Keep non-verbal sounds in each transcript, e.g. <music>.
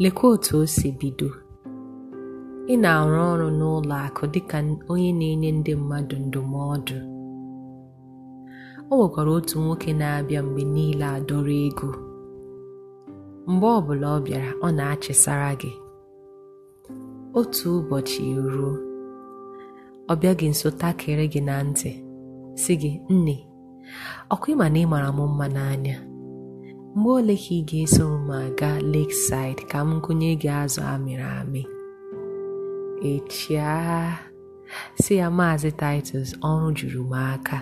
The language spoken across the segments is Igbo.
Lekwa otu o si bido: Ị na-arụ ọrụ n'ụlọ akụ dịka onye na-enye ndị mmadụ ndụmọdụ. O nwekwara otu nwoke na-abịa mgbe niile adọrọ ego. Mgbe ọbụla ọ bịara, ọ na-achịsara gị. Otu ụbọchị ruo, ọ bịaghị gị nso takịrị gị na ntị sị gị, "Nne, ọkwa ịma na ị mara m mma n'anya?" mgbe ole ka ị ga eso m aga Lakeside ka m gụnye gị azụ amịrị amị echia si ya maazị Titus ọrụ juru m aka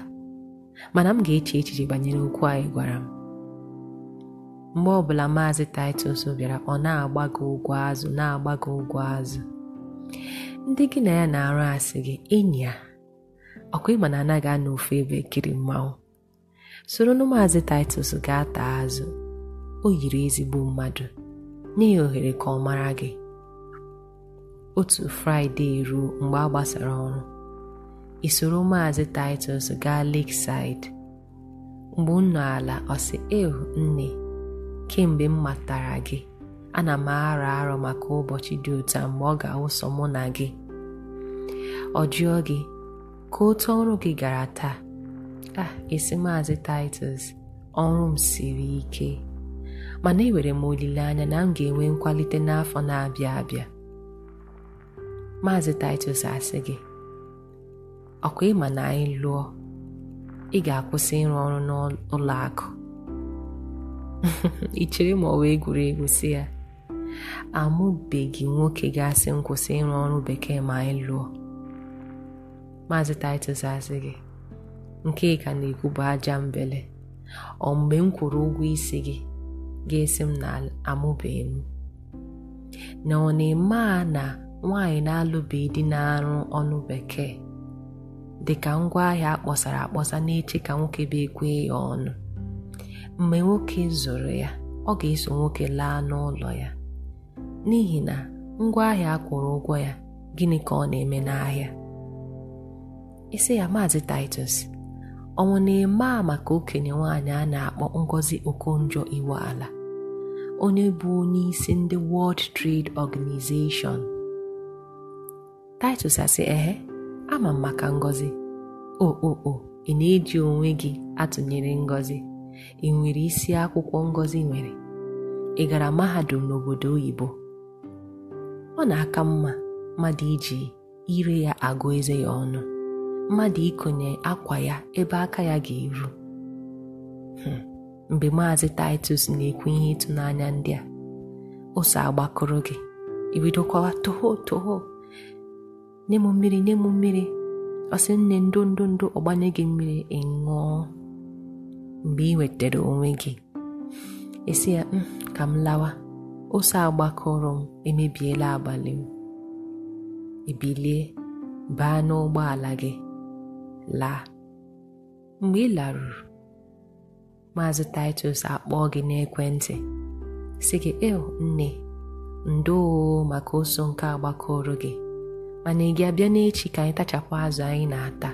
mana m ga-eche echiche banyere okwu anyị gwara m mgbe ọbụla maazị Titus bịara ọ na-agbago ụgwọ azụ na-agbago ụgwọ azụ ndị gị na ya na-arụ asị gị enyi ya ọkwa ịma na anaghị anọ ofu ebe kiri mmanwụ soro na maazị Titus gaa taa azụ o yiri ezigbo mmadụ nye ya ohere ka ọ mara gị otu fraịde ruo mgbe a gbasara ọrụ isoro maazị Titus gaa Lakeside mgbe unu ala ọ sị ehu nne kemgbe m matara gị ana m arọ arọ maka ụbọchị dị ụta mgbe ọ ga-awụsọ mụ na gị ọ jụọ gị ka otu ọrụ gị gara taa a ah, esi maazị Titus ọrụ m siri ike mana enwere m olileanya na m ga-enwe nkwalite n'afọ na-abịa abịa Maazị Titus asị gị ọkwa ịma na anyị lụọ ị ga-akwụsị ịrụ ọrụ n'ụlọ akụ <laughs> ị chere ma ọ wee egwuregwu si ya amụbeghị nwoke ga-asị kwụsị ịrụ ọrụ bekee ma anyị lụọ Maazị Titus asị gị nke ka na-ekwu bụ aja mbele ọ mgbe m kwụrụ ụgwọ isi gị ga-esi m na amụbeghị m na ọ na-eme a na nwaanyị na-alụbeghị dị na-arụ ọnụ bekee dị dịka ngwaahịa akpọsara akpọsa na-eche ka nwoke bụ ekwe ya ọnụ mgbe nwoke zụrụ ya ọ ga-eso nwoke laa n'ụlọ ya n'ihi na ngwaahịa akwụrụ ụgwọ ya gịnị ka ọ na-eme n'ahịa isi ya maazị Titus ọnwụ na-eme a maka okenye nwaanyị a na-akpọ Ngozi Okonjo ala onye bụ onyeisi ndị World Trade Organization Titus asị ehe ama m maka ngọzi okpokpo ị na-eji onwe gị atụnyere ngọzi ị nwere isi akwụkwọ ngọzi nwere ị gara mahadum n'obodo oyibo ọ na-aka mma mmadụ iji ire ya agụ eze ya ọnụ mmadụ ikonye akwa ya ebe aka ya ga-eru hmm. mgbe Maazị Titus na-ekwu ihe ịtụnanya ndị a ụsọ agbakọrọ gị ibido kọwa toho toho nye m mmiri nye m mmiri ọ nne ndụ ndụ ọgbanye gị mmiri ịṅụọ mgbe ị nwetara onwe gị esi ya mm, ka m lawa ose agbakọrọ m emebiela abalị m ebilie baa n'ụgbọala gị laa mgbe ị laruru maazị Titus akpọọ gị n'ekwentị sị gị eo nne ndoo maka ụsọ nke agbakọrọ gị mana ị ga-abịa n'echi ka anyị tachapụ azụ anyị na-ata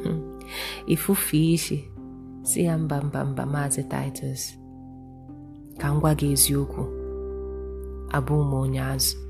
<laughs> ifufe isi si ya mba mba mba maazị Titus ka m gwa gị eziokwu abụ m onye